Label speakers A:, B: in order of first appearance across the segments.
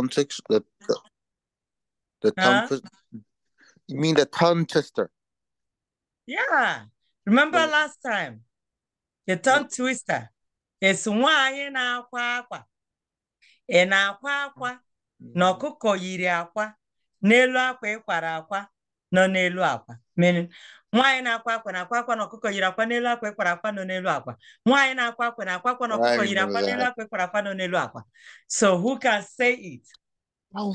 A: context the the, the huh? tongue you mean the tongue twister yeah remember yeah. last time the tongue twister it's why in akwa ị na-akwa akwa mm. na ọkụkọ yiri aqua, n'elu akwa ịkwara akwa nọ n'elu akwa meaning nwaanyị na-akwa akwa na akwa akwa na ọkụkọ yiri akwa n'elu akwa ekwara akwa nọ n'elu akwa nwaanyị na-akwa akwa na akwa akwa na ọkụkọ yiri akwa n'elu akwa ekwara akwa nọ n'elu akwa so who can say it oh,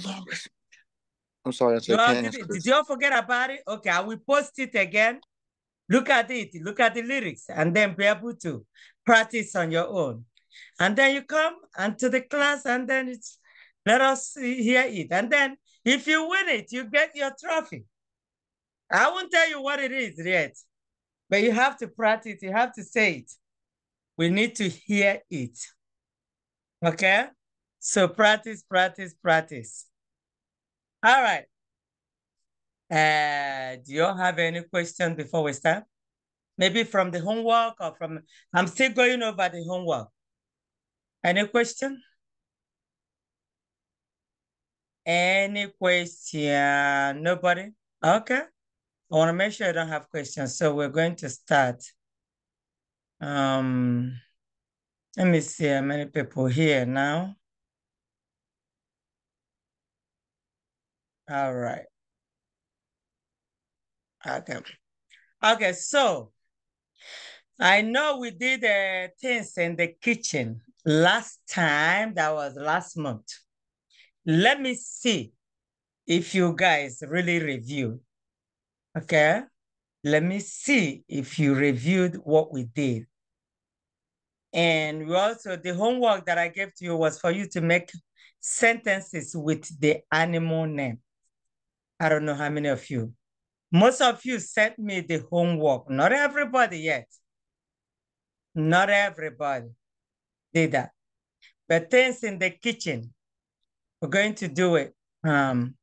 A: I'm sorry. Did, it. did you all forget about it? Okay, I will post it again. Look at it. Look at the lyrics, and then be able to practice on your own. And then you come and to the class, and then it's let us hear it. And then if you win it, you get your trophy. I won't tell you what it is yet, but you have to practice, you have to say it. We need to hear it. Okay? So practice, practice, practice. All right. Uh, do you have any questions before we start? Maybe from the homework or from, I'm still going over the homework. Any question? Any question? Nobody? Okay. I want to make sure I don't have questions. So we're going to start. Um, let me see how many people here now. All right. Okay. Okay, so I know we did uh, things in the kitchen last time. That was last month. Let me see if you guys really review Okay. Let me see if you reviewed what we did. And we also, the homework that I gave to you was for you to make sentences with the animal name. I don't know how many of you. Most of you sent me the homework. Not everybody yet. Not everybody did that. But things in the kitchen, we're going to do it. Um,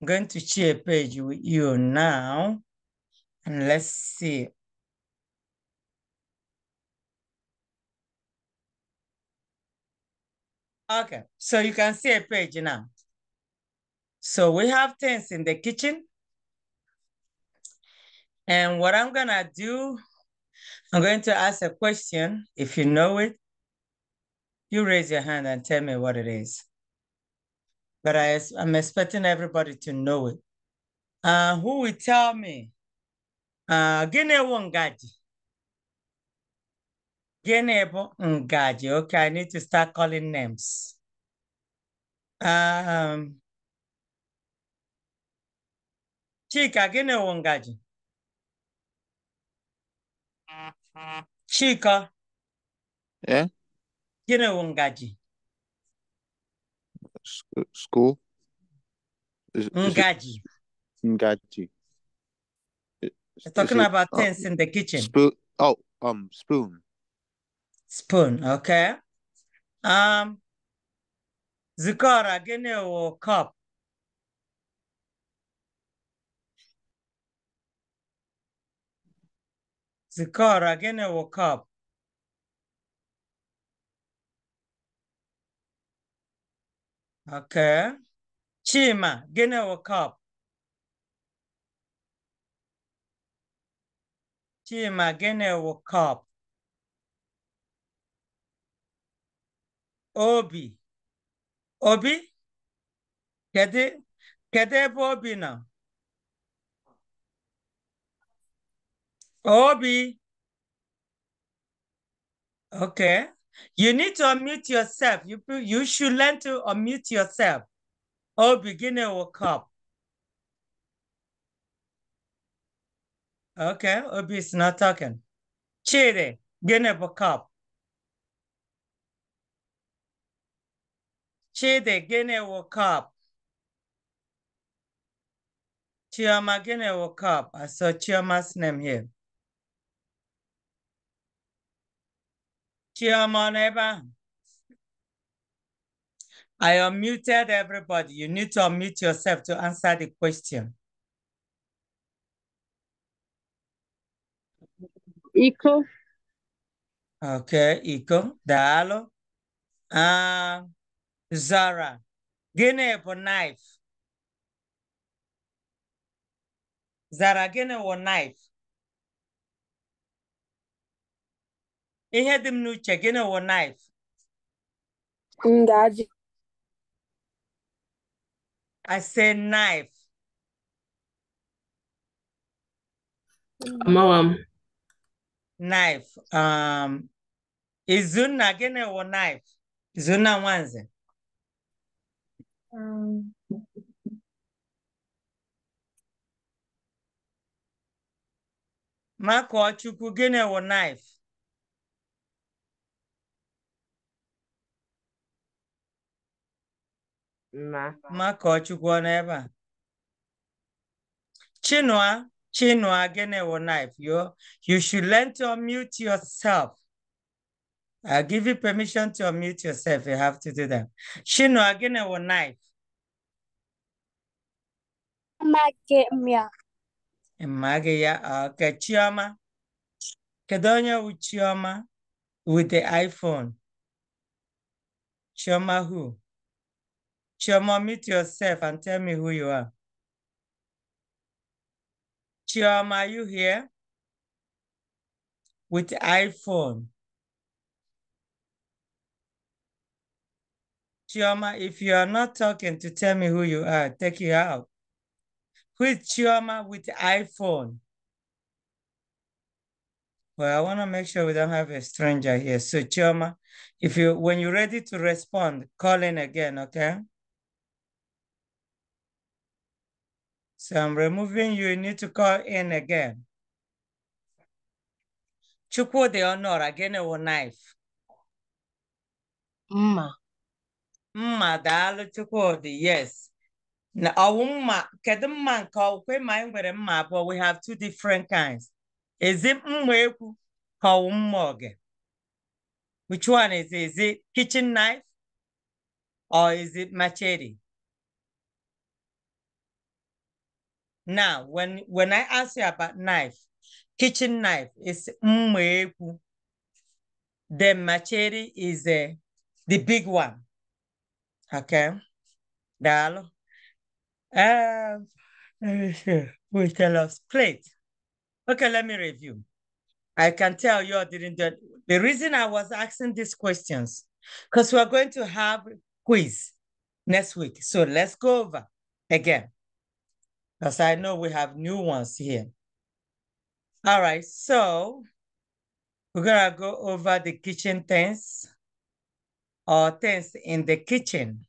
A: I'm going to share a page with you now. And let's see. Okay, so you can see a page now. So we have things in the kitchen. And what I'm gonna do, I'm going to ask a question. If you know it, you raise your hand and tell me what it is but I, am expecting everybody to know it. Uh, who will tell me? Uh, Gene Wongaji. Gene Ngaji. Okay, I need to start calling names. Um, Chika Gene Wongaji. Chika. Yeah. Gene Wongaji school? Is, Ngaji. Is Ngaji. we talking it, about uh, things in the kitchen. Spoon. Oh, um, spoon. Spoon. Okay. Um. Zikora, gene or cup. Zikora, gene or cup. Okay. Chima, ginawa cup. Chima, ginawa cup. Obi. Obi? Kede, kede Obi now? Obi. Okay. You need to unmute yourself. You, you should learn to unmute yourself. Oh, beginner will come. Okay, Obi is not talking. Chidi, gene bokap. Chidi, gene wokap. Chioma, woke up. I saw Chioma's name here. Chiomoneba. I unmuted everybody. You need to unmute yourself to answer the question. Iko. Okay, Iko. Dalo. Uh, Zara. Gịnị bụ knife? Zara, gịnị bụ knife? ihe dị m n'uche gịnị wụ naif ngaji I say knife. Amawam. Knife. Um, Izunna gịnị wụ knife? Izunna Nwanze. Um. Makọchukwu gịnị wụ knife? Makọchukwu ọ nọ ebe a Chinua Chinua gịnị wụ knife you you should learn to unmute yourself I give you permission to unmute yourself you have to do that Chinua gịnị wụ knife Amaghị ya ok Chioma kedu onye wụ Chioma with the iPhone Chioma who Chioma, meet yourself and tell me who you are. Chioma, are you here? With iPhone. Chioma, if you are not talking to tell me who you are, take you out. Who is Chioma with iPhone? Well, I want to make sure we don't have a stranger here. So Chioma, if you when you're ready to respond, call in again, okay? So I'm removing you. You need to call in again. Chukwu the honor again a knife. Mma. Mma daalụ Chukwudi yes. Na ọwụ mma kedu mma nke ọkwe ma nwere mma abụọ we have two different kinds. Is it mma ekwu ka ọwụ mma oge? Which one is it? Is it kitchen knife or is it machete? Now, when, when I ask you about knife, kitchen knife is mmeku. The machete is uh, the big one. Okay. Dalo. Um, let me see. We tell us plate. Okay, let me review. I can tell you I didn't do it. The reason I was asking these questions, because we're going to have quiz next week. So let's go over again. Because I know we have new ones here. All right, so we're gonna go over the kitchen things or things in the kitchen.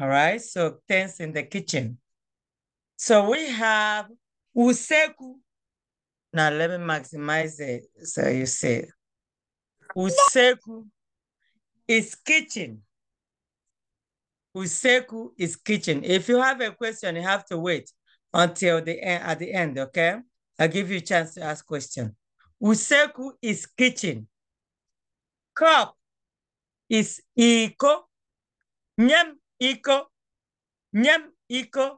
A: All right, so things in the kitchen. So we have useku. Now let me maximize it so you see. Useku is kitchen. Useku is kitchen. If you have a question, you have to wait until the end, at the end, okay? I'll give you a chance to ask question. Useku is kitchen. Cup is iko. Nyam iko. Nyam iko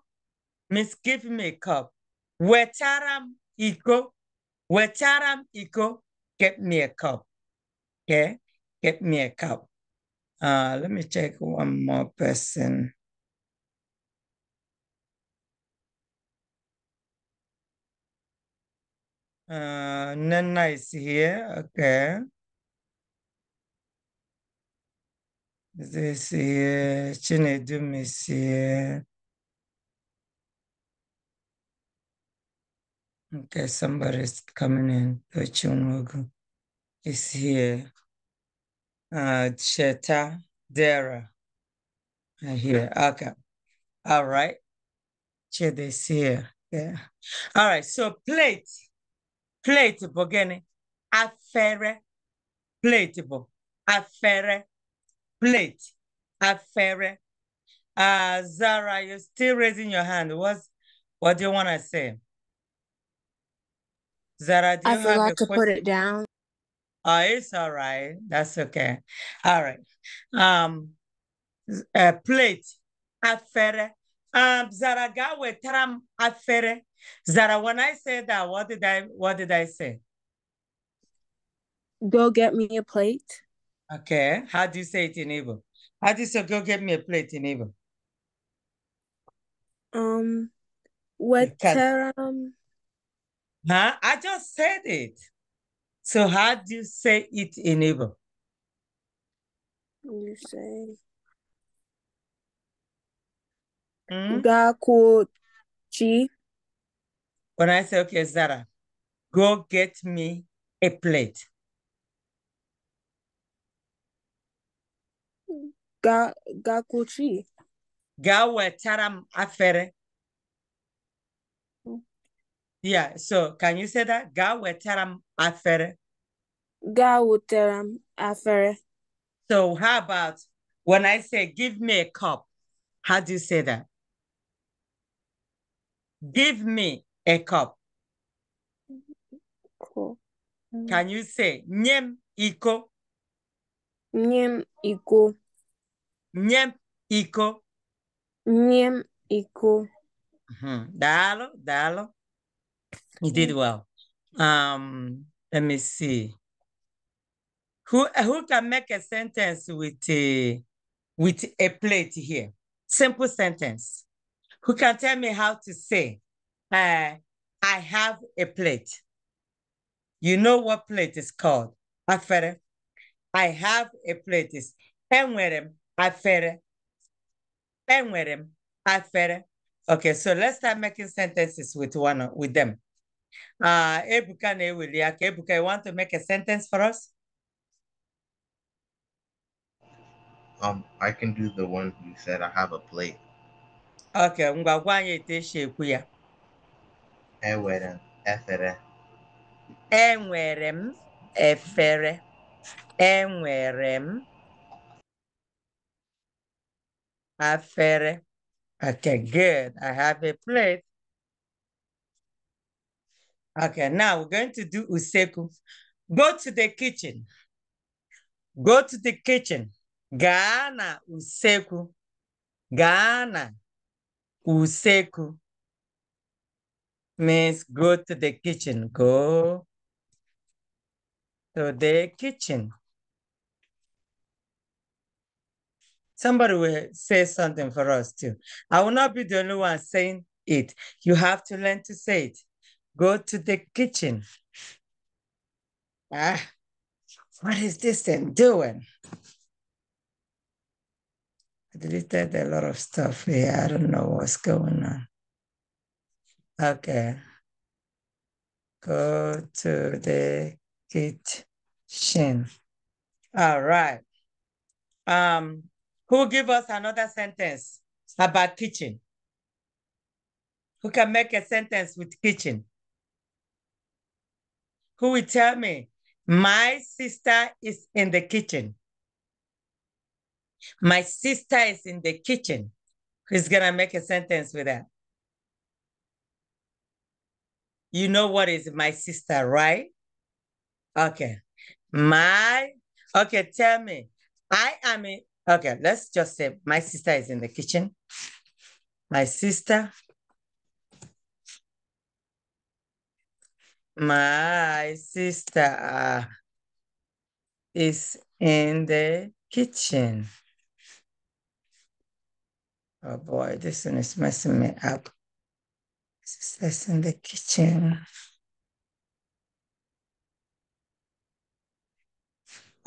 A: means give me a cup. Wetaram iko. Wetaram iko. Get me a cup. Okay? Get me a cup. Uh, let me check one more person. Uh, Nana is here, okay. This here, Chinedum is here. Okay, somebody's coming in. The Chunwogu is here. Uh, Cheta Dera. I hear. Okay. All right. Chedesir. Yeah. All right. So plate. Plate bụ gịnị? Afere. Plate bụ Plate. Afere. Uh, Zara, you're still raising your hand. What's, what do you want to say? Zara, do you I forgot to question? put it down. Oh, it's all right. That's okay. All right. Um, a uh, plate afere. Um, zara gawe taram afere. Zara, when I said that, what did I what did I say? Go get me a plate. Okay. How do you say it in Igbo? How do you say go get me a plate in Igbo? Um, what taram? Huh? I just said it. So how do you say it in English? You say mm? When I say okay, Zara, go get me a plate. Ga gakuchi. Ga wetara m afere. Yeah, so can you say that? Ga afere. Ga afere. So how about when I say give me a cup, how do you say that? Give me a cup. Cool. Can you say nyem iko? Nyem iko. Nyem iko. Nyem iko. Mm -hmm. Dalo, dalo. He did mm-hmm. well. Um, let me see. Who who can make a sentence with a with a plate here? Simple sentence. Who can tell me how to say, uh, I have a plate. You know what plate is called? Afere. I have a plate is enwerem afere. enwerem afere. Okay, so let's start making sentences with one with them. Uh, Ebuka Newiliak, Ebuka, you want to make a sentence for us? Um, I can do the one you said I have a plate. Okay, ngwagwa anyị eteshe ekwu ya. Enwere m efere. Enwere m efere. Enwere m efere. Okay, good. I have a plate. Okay, now we're going to do useku. Go to the kitchen. Go to the kitchen. Ghana useku. Ghana useku means go to the kitchen. Go to the kitchen. somebody will say something for us too. I will not be the only one saying it. You have to learn to say it. Go to the kitchen. Ah, what is this thing doing? I deleted a lot of stuff here. I don't know what's going on. Okay. Go to the kitchen. All right. Um, who give us another sentence about kitchen? Who can make a sentence with kitchen? Who will tell me, my sister is in the kitchen? My sister is in the kitchen. Who's going to make a sentence with that? You know what is my sister, right? Okay. My, okay, tell me. I am in, Okay, let's just say my sister is in the kitchen. My sister. My sister is in the kitchen. Oh boy, this one is messing me up. Sister's in the kitchen.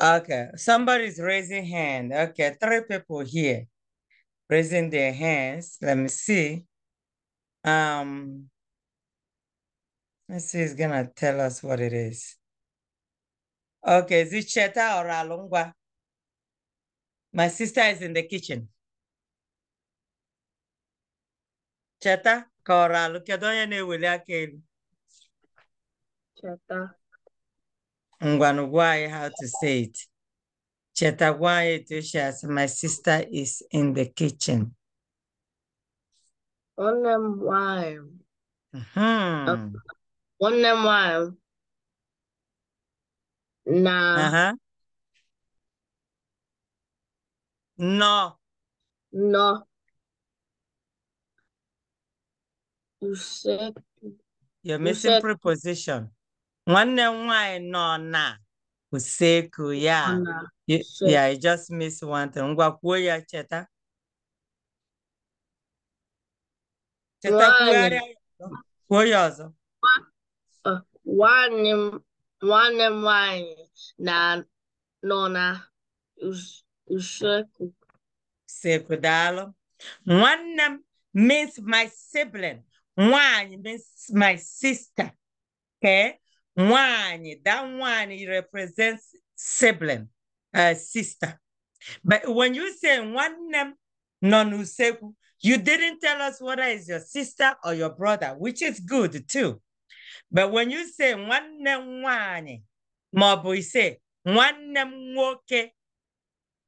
A: Okay, somebody's raising hand. Okay, three people here raising their hands. Let me see. Um, let's see, it's gonna tell us what it is. Okay, is it Cheta or Alungwa? My sister is in the kitchen. Cheta, Cora, look at Cheta. Ngwanu Ngwanugwai, how to say it. Chetagwai Etushas, my sister is in the kitchen. Onamwai. Uh-huh. Mm-hmm. Onamwai. Na. Uh-huh. No. No. You said. You're missing you said, preposition. Nwanne m nwanyị nọ na usekwu ya ya I just miss one thing. Ngwa kwuo ya cheta. Cheta kwugharịa kwuo ya ọzọ. Nwanne uh, m nwanne m nwanyị na nọ na usekwu. Usekwu daalụ. Nwanne m means my sibling. Nwanyị means my sister. Okay? Nwani, that one represents sibling, uh, sister. But when you say one name, nonuseku, you didn't tell us whether it's your sister or your brother, which is good too. But when you say one name, one, Mabu, say one name, okay.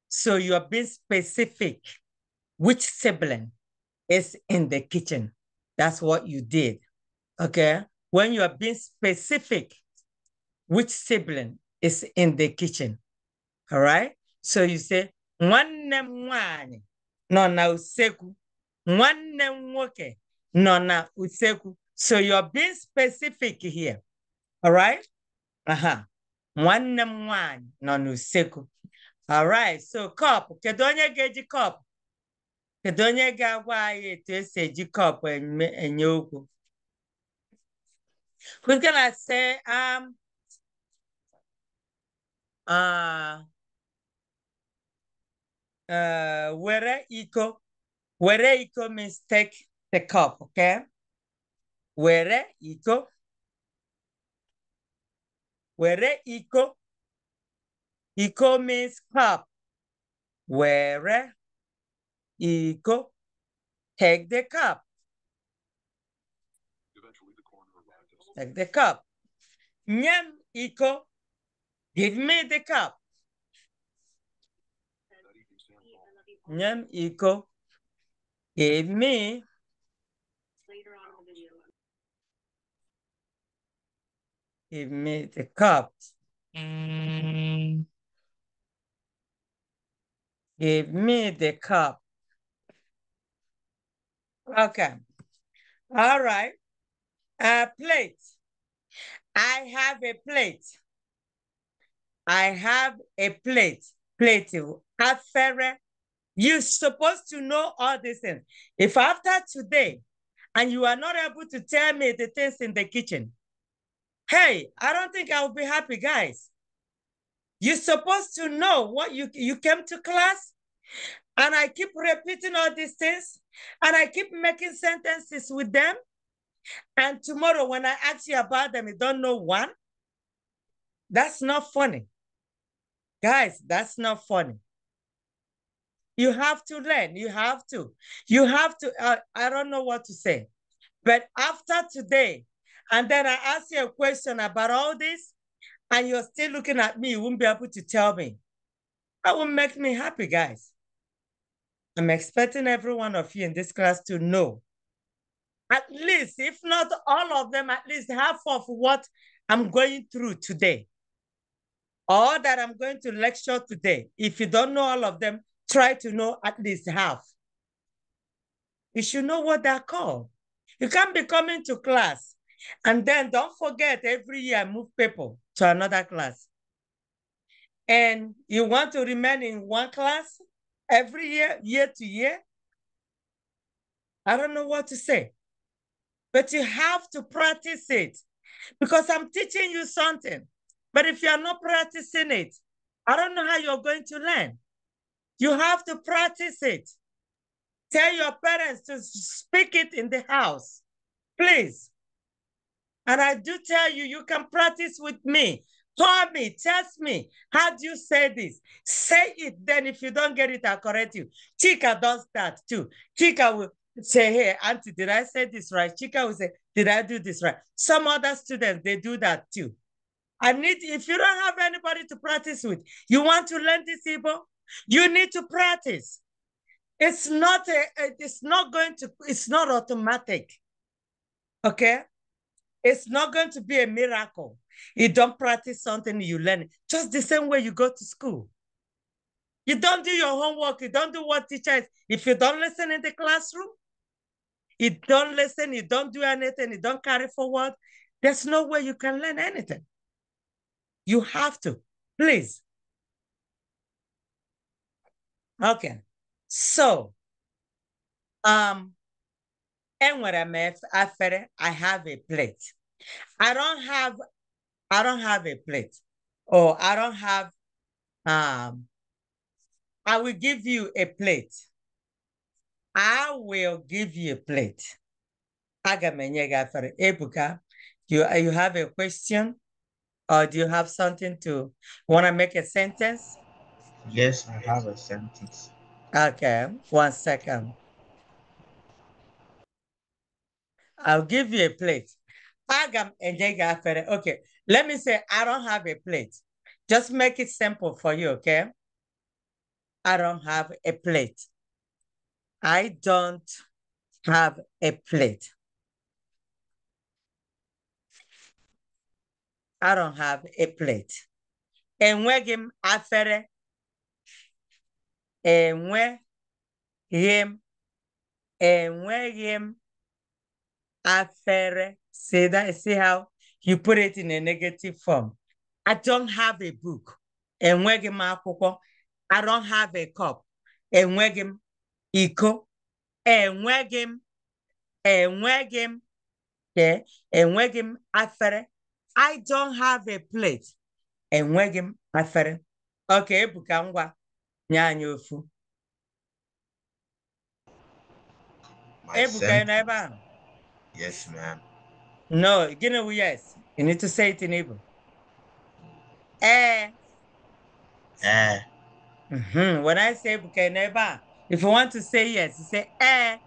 A: So you are being specific. Which sibling is in the kitchen? That's what you did. Okay when you are being specific, which sibling is in the kitchen. All right? So you say, one m one, nọ na One nwanne one, nwoke nọ So you're being specific here. All right? Uh-huh. One m one, nọ na All right. So cup, kedu onye ga cup? Kedu onye ga-agwa anyị etu esi eji cup enye okwu? Who's gonna say um uh uh where eco where eco mistake the cup, okay? Where eco where eco eco means cup. Where eco take the cup. Take the cup. Nyam iko. Give me the cup. Nyam iko. Give me. Give me the cup. Give me the cup. Okay. All right. A plate. I have a plate. I have a plate. Plate. Oh. Afere. You're supposed to know all these things. If after today, and you are not able to tell me the things in the kitchen, hey, I don't think I'll be happy, guys. You're supposed to know what you, you came to class, and I keep repeating all these things, and I keep making sentences with them, and tomorrow, when I ask you about them, you don't know one. That's not funny. Guys, that's not funny. You have to learn. You have to. You have to. Uh, I don't know what to say. But after today, and then I ask you a question about all this, and you're still looking at me, you won't be able to tell me. That will make me happy, guys. I'm expecting every one of you in this class to know at least, if not all of them, at least half of what I'm going through today, or that I'm going to lecture today. If you don't know all of them, try to know at least half. You should know what they're called. You can't be coming to class and then don't forget every year I move people to another class. And you want to remain in one class every year, year to year? I don't know what to say but you have to practice it because I'm teaching you something. But if you are not practicing it, I don't know how you're going to learn. You have to practice it. Tell your parents to speak it in the house, please. And I do tell you, you can practice with me. Tell me, test me. How do you say this? Say it. Then if you don't get it, I'll correct you. Chica does that too. Chica will, say, hey, auntie, did I say this right? Chica will say, did I do this right? Some other students, they do that too. I need, if you don't have anybody to practice with, you want to learn this Igbo, you need to practice. It's not, a, it's not going to, it's not automatic. Okay? It's not going to be a miracle. You don't practice something, you learn it. Just the same way you go to school. You don't do your homework. You don't do what teacher is. If you don't listen in the classroom, you don't listen, you don't do anything, you don't carry forward, there's no way you can learn anything. You have to, please. Okay, so um, and what I'm after, I have a plate. I don't have, I don't have a plate, or I don't have. Um, I will give you a plate. I will give you a plate. Aga m Ebuka, you, you have a question or do you have something to, want to make a sentence? Yes, I have a sentence. Okay, one second. I'll give you a plate. Agam enye gị Okay, let me say I don't have a plate. Just make it simple for you, okay? I don't have a plate. I don't have a plate. I don't have a plate. And m afere. Enweghị m. Enweghị m afere. See that? See how you put it in a negative form. I don't have a book. Enweghị m akwụkwọ. I don't have a cup. Enweghị him? iko enweghị m enweghị m enweghị m afere i don't have a plate enweghị m afere ọka ebuka ngwa nye anyị ofu ebuka nọ ebe ahụ yes ma'am no gịnị wu yes you need to say it in Igbo ee eh. ee eh. mhm. when i say ebuka nọ ebe a If you want to say yes, you say eh,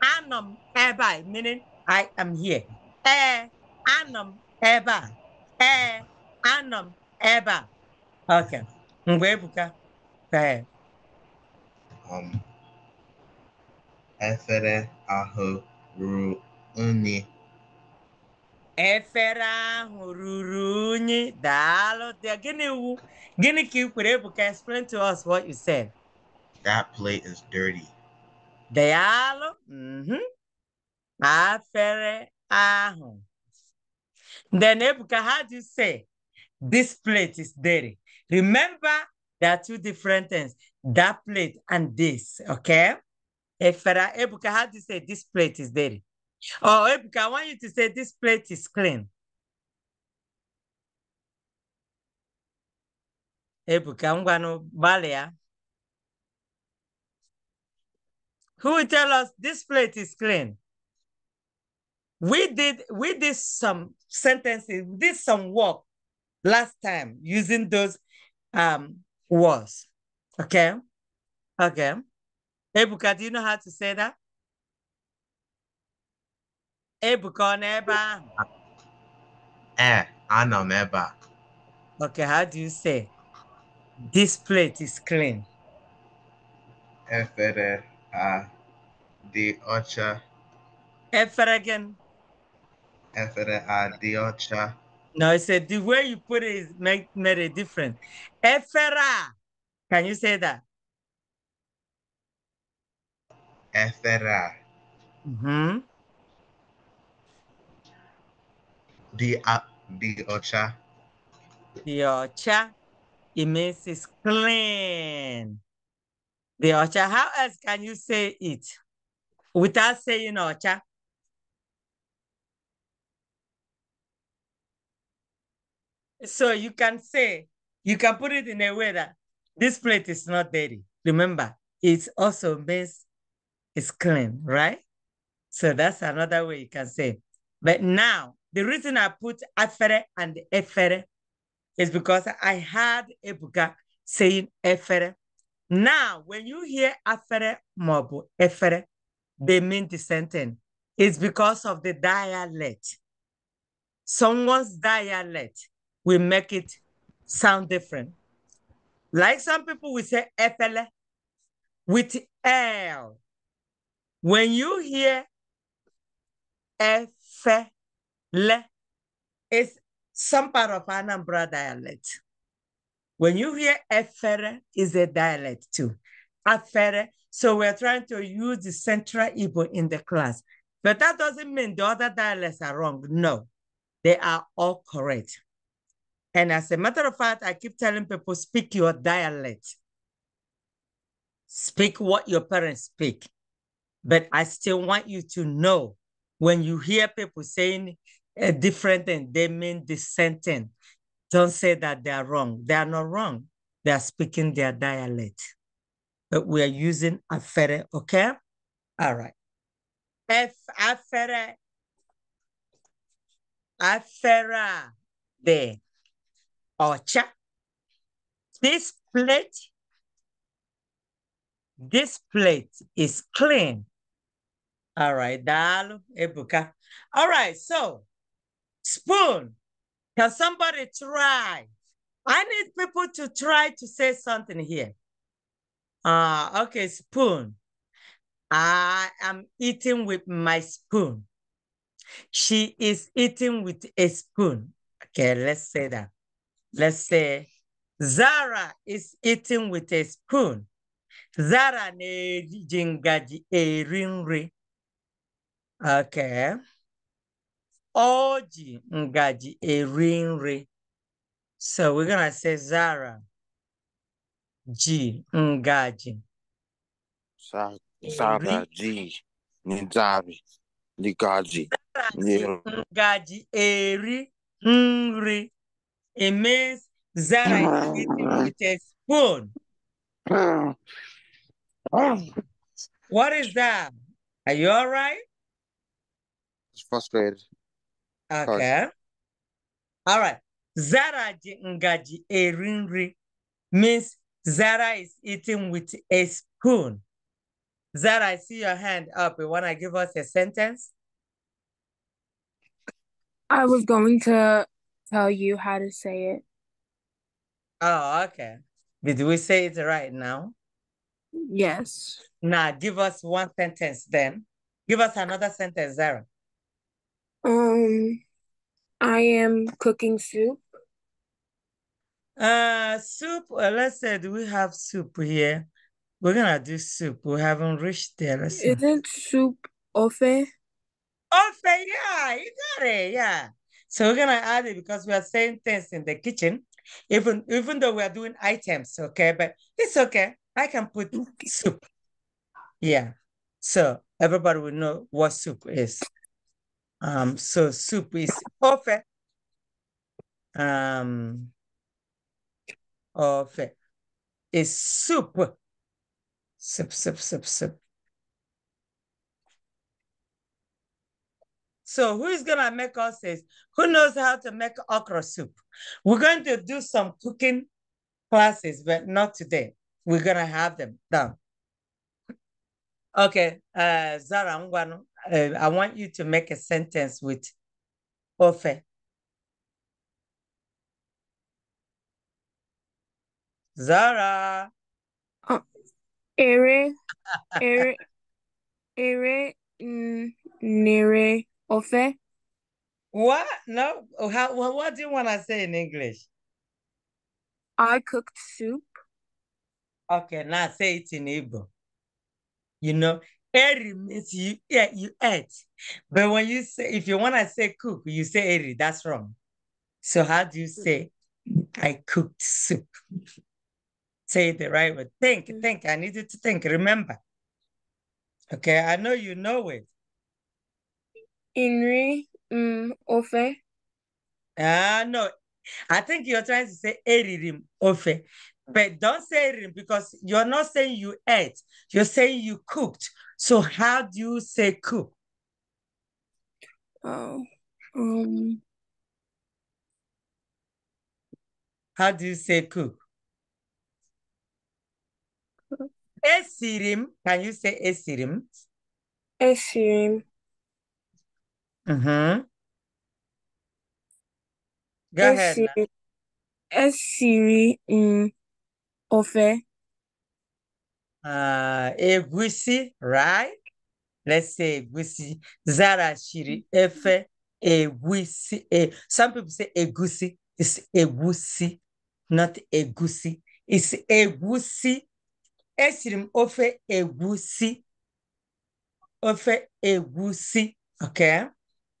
A: anum eba, meaning I am here. Eh, anum eba. Eh, anum eba. Okay. Mgbebuka, go ahead. Um, efere ahụ ruru unyi. Efere ahụ ruru unyi. Daalụ. Gịnị wu? Gịnị ka ị Explain to us what you said. That plate is dirty. Dealo, Mm-hmm. Afere ahu. Then Nebuchadnezzar say, this plate is dirty. Remember, there are two different things, that plate and this, okay? If Ebuka do you say this plate is dirty. Oh, Ebuka, I want you to say this plate is clean. Ebuka, I'm going to Balia. who will tell us this plate is clean. We did we did some sentences, we did some work last time using those um words. Okay. Okay. Ebuka, do you know how to say that? Ebuka neba. Eh, know neba. Okay, how do you say? This plate is clean. Efere uh, Deocha. Eferegen. Efere uh, Ocha. No, I said the way you put it is made a difference. Efera. Can you say that? Efera. Mm-hmm. The uh, the ocha. The ocha. It means it's clean. The Ocha. How else can you say it without saying Ocha? So you can say, you can put it in a way that this plate is not dirty. Remember, it also means it's clean, right? So that's another way you can say. But now, the reason I put afere and efere is because I had Ebuka saying efere now, when you hear afere mobu, efere, they mean the It's because of the dialect. Someone's dialect will make it sound different. Like some people will say efele with L. When you hear efele, it's some part of Anambra dialect. When you hear Efere, is a dialect too. Afere. So we're trying to use the Central Igbo in the class. But that doesn't mean the other dialects are wrong. No, they are all correct. And as a matter of fact, I keep telling people, speak your dialect. Speak what your parents speak. But I still want you to know when you hear people saying a eh, different thing, they mean the same thing. Don't say that they are wrong. They are not wrong. They are speaking their dialect. But we are using afere, okay? All right. F afere. Afera de ocha. This plate, this plate is clean. All right, dal ebuka. All right, so spoon can somebody try? I need people to try to say something here. Uh, okay, spoon. I am eating with my spoon. She is eating with a spoon. Okay, let's say that. Let's say Zara is eating with a spoon. Zara ne jingaji erinri. Okay o ji ngaji eri nri so we're gonna say zara ji ngaji zara ji nzari ngaji ngaji eri nri it means zara eating mm. with a spoon mm. what is that are you all right it's frustrated Okay. All right. Zara ngaji erinri means Zara is eating with a spoon. Zara, I see your hand up. You want to give us a sentence? I was going to tell you how to say it. Oh, okay. Did we say it right now? Yes. Now, give us one sentence then. Give us another sentence, Zara. Um, I am cooking soup. Uh, soup, well, let's say, do we have soup here? We're gonna do soup. We haven't reached there. Let's Isn't see. soup ofe? Ofe, yeah, you got it, yeah. So we're gonna add it because we are saying things in the kitchen, even even though we are doing items, okay? But it's okay. I can put soup. Yeah. So everybody will know what soup is. Um, so soup is perfect. Um, perfect. Is soup. Sip, sip, sip, sip. So who's gonna make us this? Who knows how to make okra soup? We're going to do some cooking classes, but not today. We're gonna have them done. Okay, uh, Zara uh, I want you to make a sentence with Ofe. Zara. Oh, ere, ere, ere, nere, ofe. What? No. How, what do you want to say in English? I cooked soup. Okay, now say it in Igbo. You know, Eri means you yeah, you eat. But when you say if you want to say cook, you say eri. that's wrong. So how do you say I cooked soup? say the right word. Think, mm. think. I need you to think. Remember. Okay, I know you know it. Inri um, ofe. Ah, no. I think you're trying to say eririm ofe. But don't say erim because you're not saying you ate. You're saying you cooked. So how do you say cook? Oh, um. How do you say cook? Esirim. Can you say esirim? Esirim. Uh mm-hmm. huh. Go ahead. Esiri um, mm, ofe uh, egusi, right? Let's say egusi. Zara shiri efe egusi. E. Some people say egusi. It's egusi, not egusi. It's egusi. Esrim ofe egusi. Ofe egusi. Okay.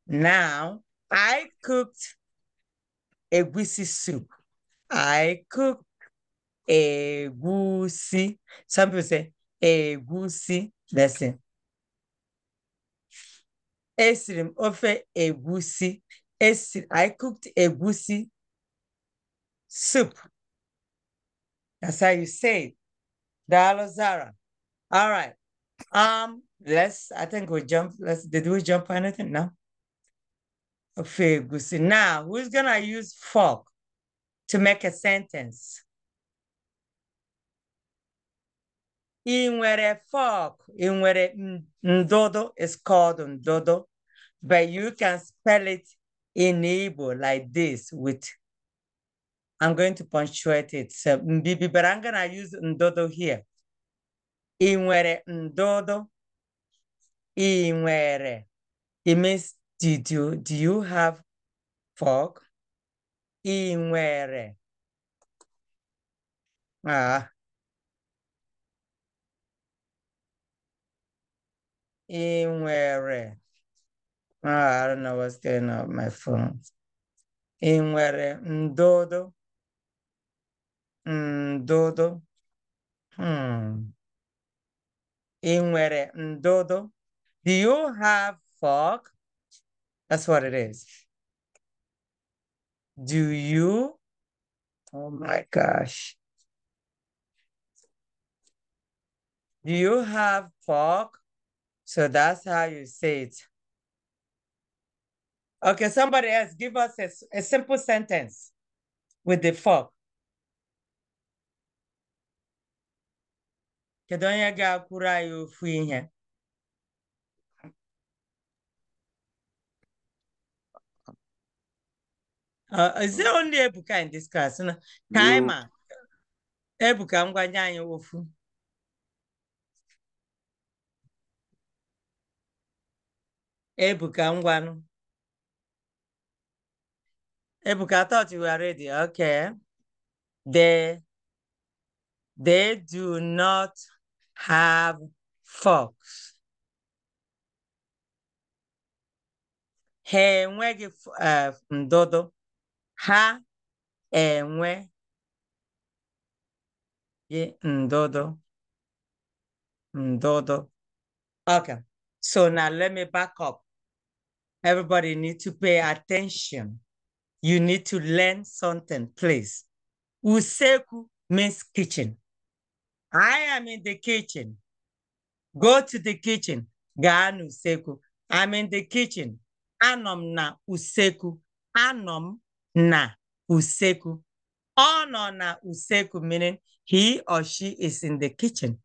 A: Now I cooked egusi soup. I cooked egusi. Some people say egusi. That's it. Esiri m a egusi. Esiri, I cooked egusi soup. That's how you say it. Dalo Zara. All right. Um, let's, I think we jump, let's, did we jump anything? No? Ofe egusi. Now, who's gonna use fork to make a sentence? ị nwere fork ị nwere ndodo is called ndodo but you can spell it in Igbo like this with I'm going to punctuate it so but I'm gonna use ndodo here ị nwere ndodo ị nwere it means did you do you have fork ị nwere ah in where oh, ah, I don't know what's going on with my phone. I nwere ndodo, ndodo, hmm. I nwere ndodo. Do you have fog? That's what it is. Do you? Oh my gosh. Do you have fog? So that's how you say it. Okay, somebody else, give us a, a simple sentence with the fork. Kedu onye ga-akwụrụ anyị ofu ihe? Uh, is it only Ebuka in this class? No. Kaima. Ebuka, I'm going to Ebuka ngwanụ Ebuka thought you were ready. Okay. They they do not have forks. Ha enweghị eh, ndụdụ. Ha enweghị ndụdụ. Ndụdụ. Okay. So now let me back up. Everybody need to pay attention. You need to learn something, please. Useku means kitchen. I am in the kitchen. Go to the kitchen. Gaan useku. I'm in the kitchen. Anom na useku. Anom na useku. Ono na useku meaning he or she is in the kitchen.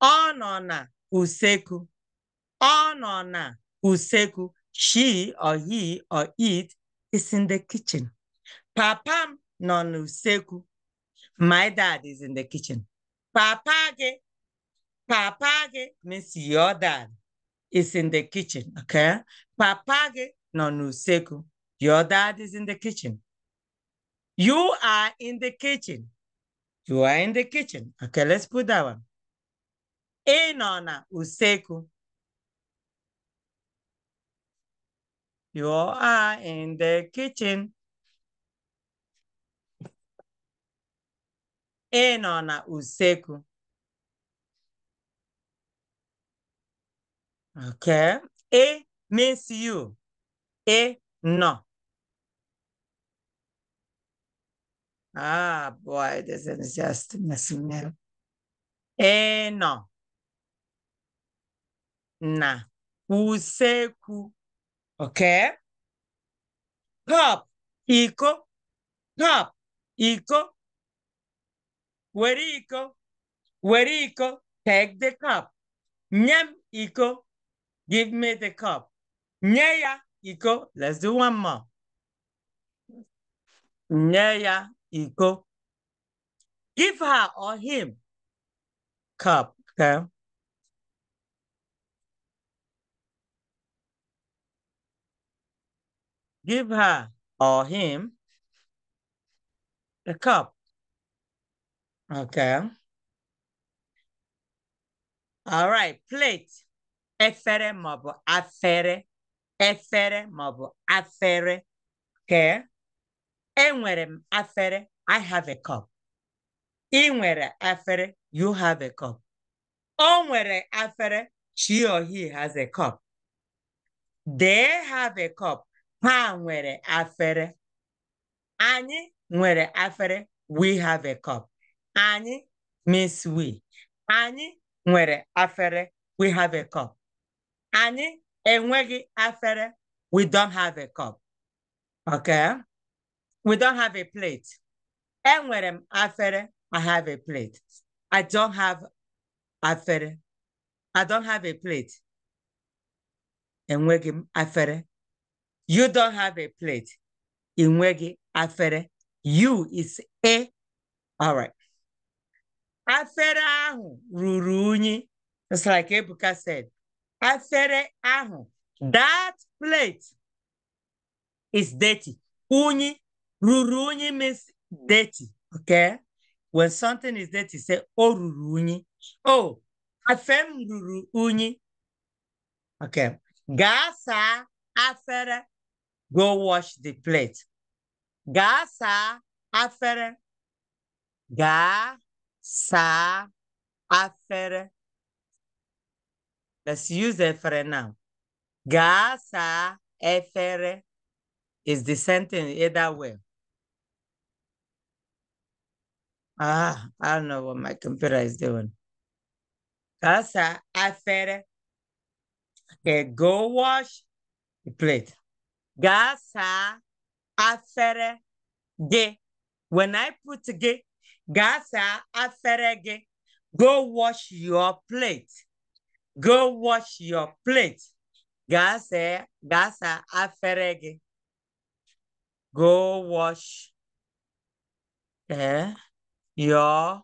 A: Ono na useku. Ono na useku. She or he or it is in the kitchen. Papa nonu seku, My dad is in the kitchen. Papa gị, papa gị means your dad is in the kitchen, okay? Papa gị nọ Your dad is in the kitchen. You are in the kitchen. You are in the kitchen. Okay, let's put that one. Enona nọ You are in the kitchen. Ị e, na usekwu. Okay. A e, means you. A e, no. Ah, boy, this is just messing me up. A no. Na. Usekwu. Okay? Top, equal, top, equal, where equal, where equal, take the cup. Nyam equal, give me the cup. Nyaya equal, let's do one more. Nyaya equal, give her or him cup, okay? give her or him a cup. Okay. All right, plate. Efere mobile. afere. Efere mobile. afere. Okay. Enwere m afere. I have a cup. Ị nwere afere. You have a cup. O nwere afere. She or he has a cup. They have a cup ha nwere afere anyị nwere afere we have a cup anyị Miss we anyị nwere afere we have a cup anyị enweghị afere we don't have a cup okay we don't have a plate enwere m afere i have a plate i don't have afere i don't have a plate enweghị m afere you don't have a plate. Inwegi afere. You is a. All right. Afere ahu ruruni. It's like Ebuka said. Afere ahu. That plate is dirty. Uni ruruni means dirty. Okay? When something is dirty, say, oh, ruruni. Oh, afem ruruni. Okay. Gasa afere Go wash the plate. Ga saa afere. Ga afere. Let's use efere now. Ga saa efere is the sentence either way. Ah, I don't know what my computer is doing. Gasa saa afere. Okay, go wash the plate. Gasa afere ge. When I put ge, gasa afere ge. Go wash your plate. Go wash your plate. Gasa gasa afere ge. Go wash eh, your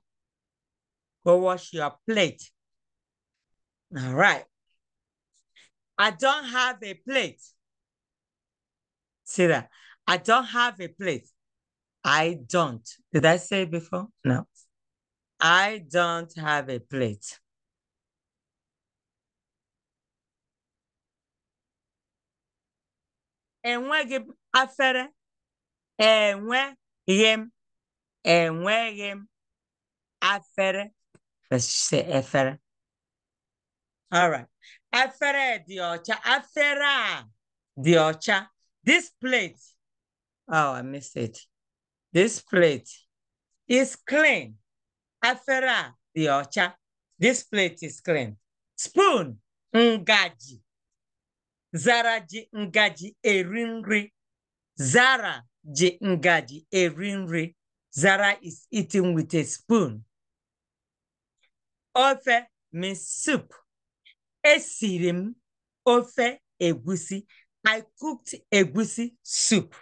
A: go wash your plate. All right. I don't have a plate. See that? I don't have a plate. I don't. Did I say before? No. I don't have a plate. Enweghị m afere. Enweghị m. Enweghị m afere. Let's say efere. All right. Efere dị ọcha. Afere dị ọcha. This plate, oh, I missed it. This plate is clean. Afera the ocha. This plate is clean. Spoon, ngaji. Zara ji ngaji erinri. Zara ji ngaji erinri. Zara is eating with a spoon. Ofe means soup. Esirim ofe egusi. I cooked a goosey soup.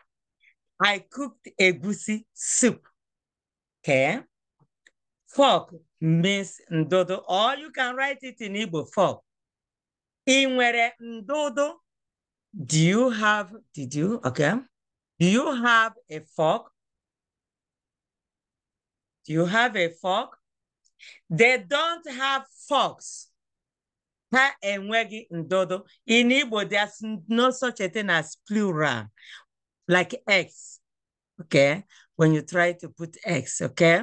A: I cooked a goosey soup. Okay. Fork means ndodo, or you can write it in Igbo fork. Inwere ndodo. Do you have, did you, okay. Do you have a fork? Do you have a fork? They don't have forks ha enweghị ndodo in igbo there's no such a thing as plural like x okay when you try to put x okay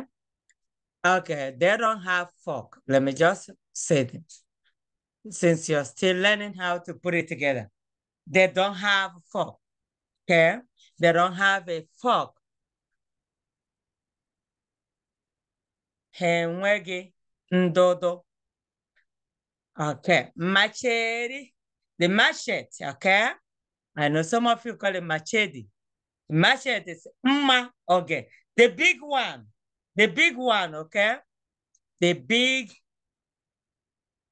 A: okay they don't have fork let me just say this since you're still learning how to put it together they don't have fork okay they don't have a fork ha enweghị ndodo Okay, machete, the machete, okay? I know some of you call it machete. Machete is mma, okay. The big one, the big one, okay? The big,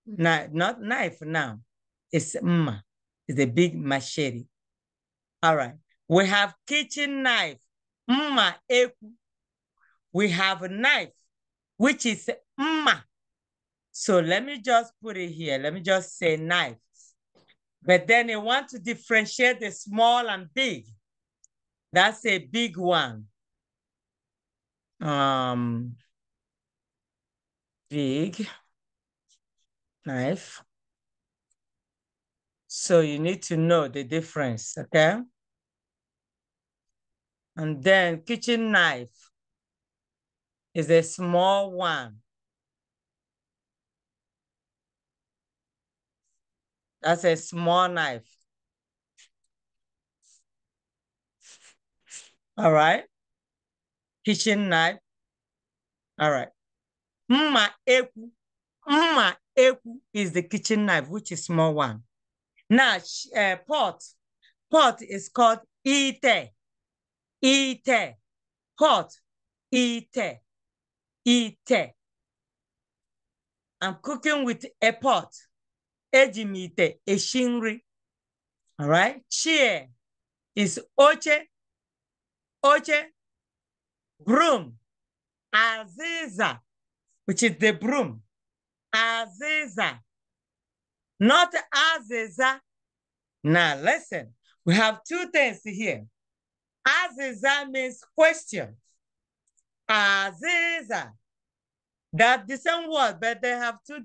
A: not, not knife now, it's mma, it's the big machete. All right, we have kitchen knife, mma We have a knife, which is mma, so let me just put it here. Let me just say knife. But then you want to differentiate the small and big. That's a big one. Um, big knife. So you need to know the difference, okay? And then kitchen knife is a small one. That's a small knife. All right. Kitchen knife. All right. Mma eku. Mma eku is the kitchen knife, which is small one. Now, uh, pot. Pot is called ite. Ite. Pot. Ite. Ite. I'm cooking with a pot eji m eshi nri all right chair is oche oche broom aziza which is the broom aziza not aziza now listen we have two things here aziza means question aziza that the same word, but they have two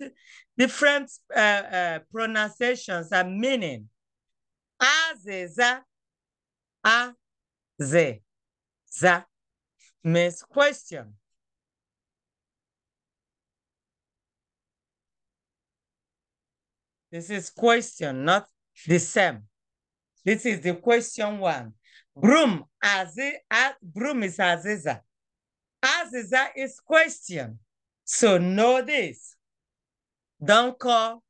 A: different uh, uh, pronunciations and meaning. Azeza, a, ze, za, means question. This is question, not the same. This is the question one. Broom, azi, a, broom is aziza. Aziza is question. So know this. Don't call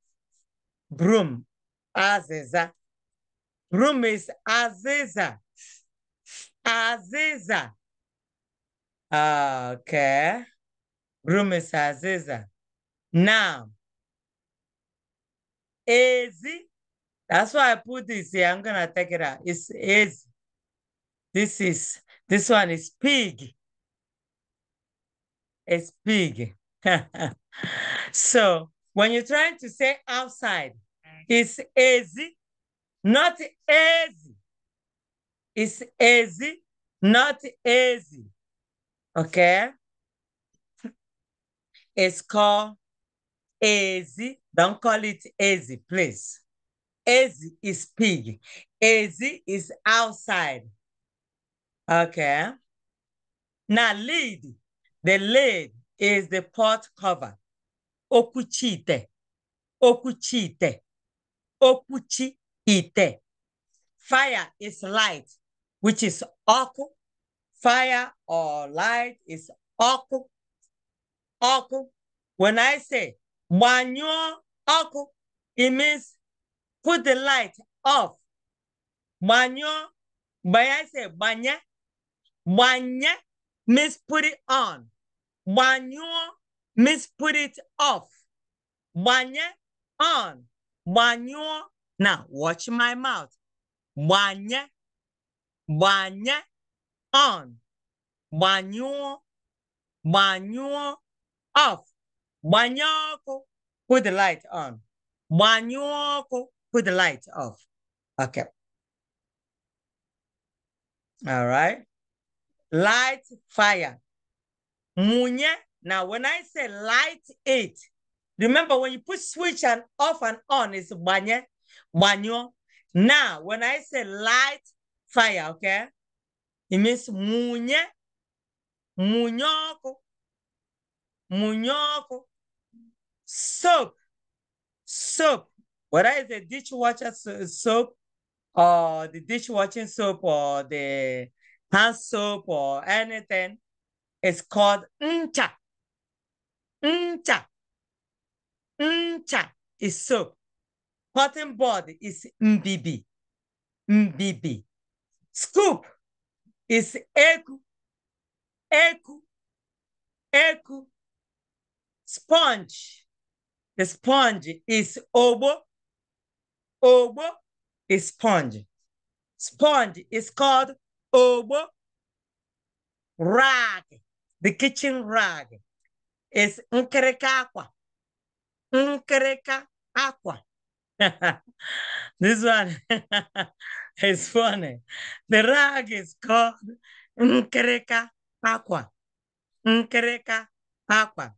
A: broom Aziza. Broom is Aziza. Aziza. Okay. Broom is Aziza. Now, easy. That's why I put this here. I'm going to take it out. It's easy. This is, this one is pig. It's pig. so when you're trying to say outside, it's easy, not easy. It's easy, not easy. Okay? It's called easy. Don't call it easy, please. Easy is pig. Easy is outside. Okay? Now lead, the lead is the pot cover. Okuchite. Okuchite. Okuchite. Fire is light, which is oku. Fire or light is oku. Oku. When I say manyo oku, it means put the light off. Manyo, when I say banya, banya means put it on. Banyo means put it off. Banye on. Banyo. Now watch my mouth. Banye. Banye on. Banyo. Banyo off. Banyoko. Put the light on. Banyoko. Put the light off. Okay. All right. Light fire. Munye. Now, when I say light it, remember when you put switch and off and on, it's banye, banyo. Now, when I say light fire, okay, it means munye, munyoko, munyoko. Soap, soap. Whether it's the dishwasher soap or the dishwashing soap or the hand soap or anything, it's called ncha. Ncha. Ncha is soap. Cotton body is mbb. Mbb. Scoop is eku. Eku. Eku. Sponge. The sponge is obo. Obo is sponge. Sponge is called obo. Rag the kitchen rag is nkereka aqua. Nkereka aqua. this one is funny. The rag is called nkereka aqua. Nkereka aqua.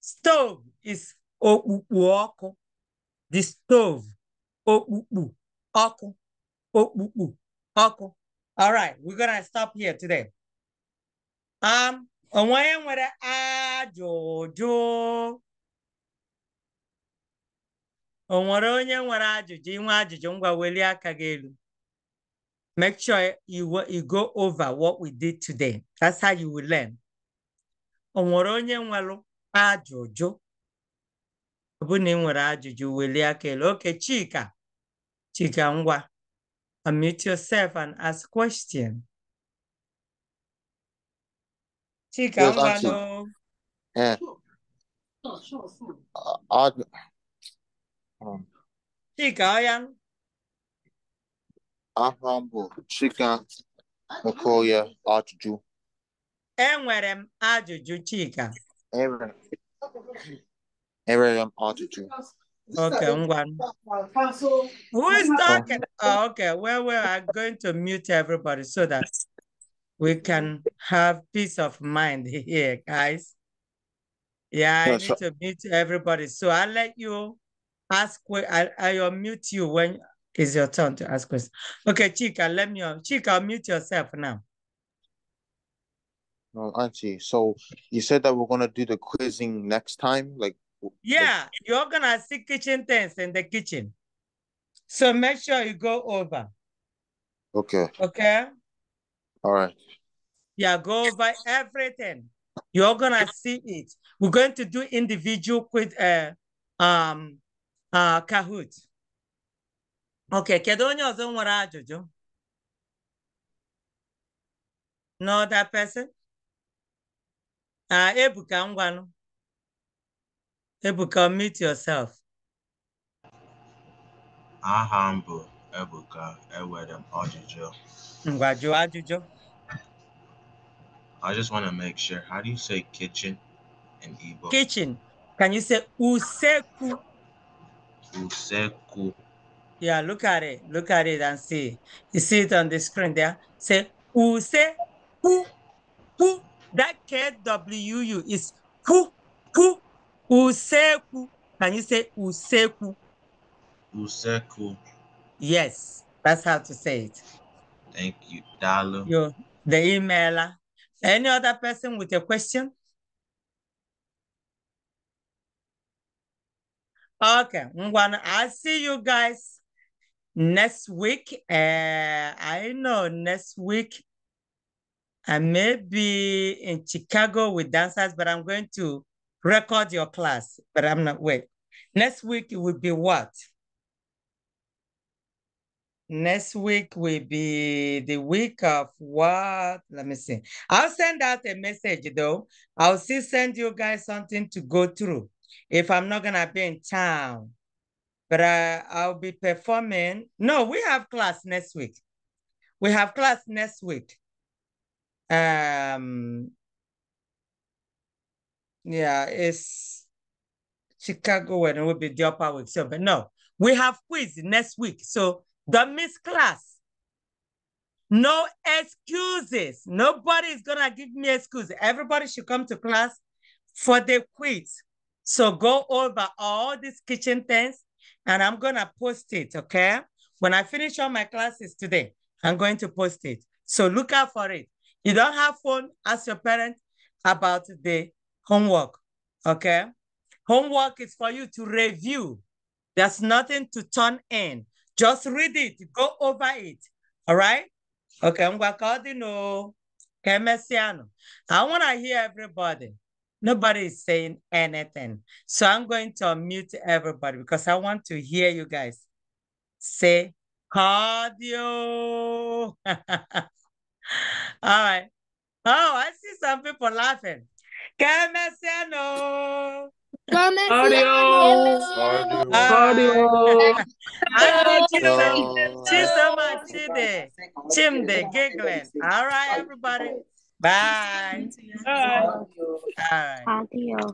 A: Stove is okpukpu The stove okpukpu ọkụ okpukpu ọkụ. All right, we're gonna stop here today. Um, onye nwere ajụjụ o nwere onye nwere ajụjụ inwe ajụjụ ngwa welie aka gị elu make sure you, go over what we did today that's how you will learn o nwere onye nwere ajụjụ ọ bụ na ị nwere ajụjụ welie aka elu oke Chika Chika ngwa unmute yourself and ask questions. Chicambano. Eh. Uh, ah, um, ah. Chicayan. Ahambo, Chika, Makoya, Ajụjụ. Enwere m ajụjụ Chika. Enwere m ajụjụ. Okay, Ngwan. Who is talking? Oh, okay, well, well, I'm going to mute everybody so that we can have peace of mind here, guys. Yeah, I need to mute everybody. So I'll let you ask, I'll, I'll mute you when it's your turn to ask questions. Okay, Chica, let me, Chica, mute yourself now. No, Auntie, so you said that we're going to do the quizzing next time? like Yeah, like... you're going to see kitchen things in the kitchen. So make sure you go over. Okay. Okay. All right. Yeah, go over everything. You're gonna see it. We're going to do individual with uh, um uh, Kahoot. Okay, kedu onye ọzọ nwere you? No that person? Uh, Ebuka ngwanụ. Ebuka, meet yourself. Ah, humble. Ebuka enwere m ajụjụ ngwa I just want to make sure. How do you say kitchen in Igbo? Kitchen. Can you say useku? Useku. Yeah, look at it. Look at it and see. You see it on the screen there. Say useku. Ku. That K-W-U is ku. Ku. Useku. Can you say useku? Useku. Yes, that's how to say it. Thank you, Dalu. You, the emailer. Any other person with a question? Okay, Ngwana, I'll see you guys next week. Uh, I know next week I may be in Chicago with dancers, but I'm going to record your class. But I'm not, wait. Next week it will be what? next week will be the week of what? Let me see. I'll send out a message though. I'll still send you guys something to go through if I'm not gonna be in town. But I, uh, I'll be performing. No, we have class next week. We have class next week. Um yeah, it's Chicago and it will be the upper week. So but no, we have quiz next week. So the Miss Class. No excuses. Nobody is gonna give me excuses. Everybody should come to class for the quiz. So go over all these kitchen things and I'm gonna post it, okay? When I finish all my classes today, I'm going to post it. So look out for it. You don't have phone, ask your parent about the homework, okay? Homework is for you to review. There's nothing to turn in. Just read it. Go over it. All right? Okay, I'm going to Wakadino. Kemesiano. I want to hear everybody. Nobody is saying anything. So I'm going to unmute everybody because I want to hear you guys say cardio. All right. Oh, I see some people laughing. Kemesiano. Adios. Adios. Adios. Chisama, Chide, Chimde, Giggles. All right, everybody. Bye. Bye. All right. Adios.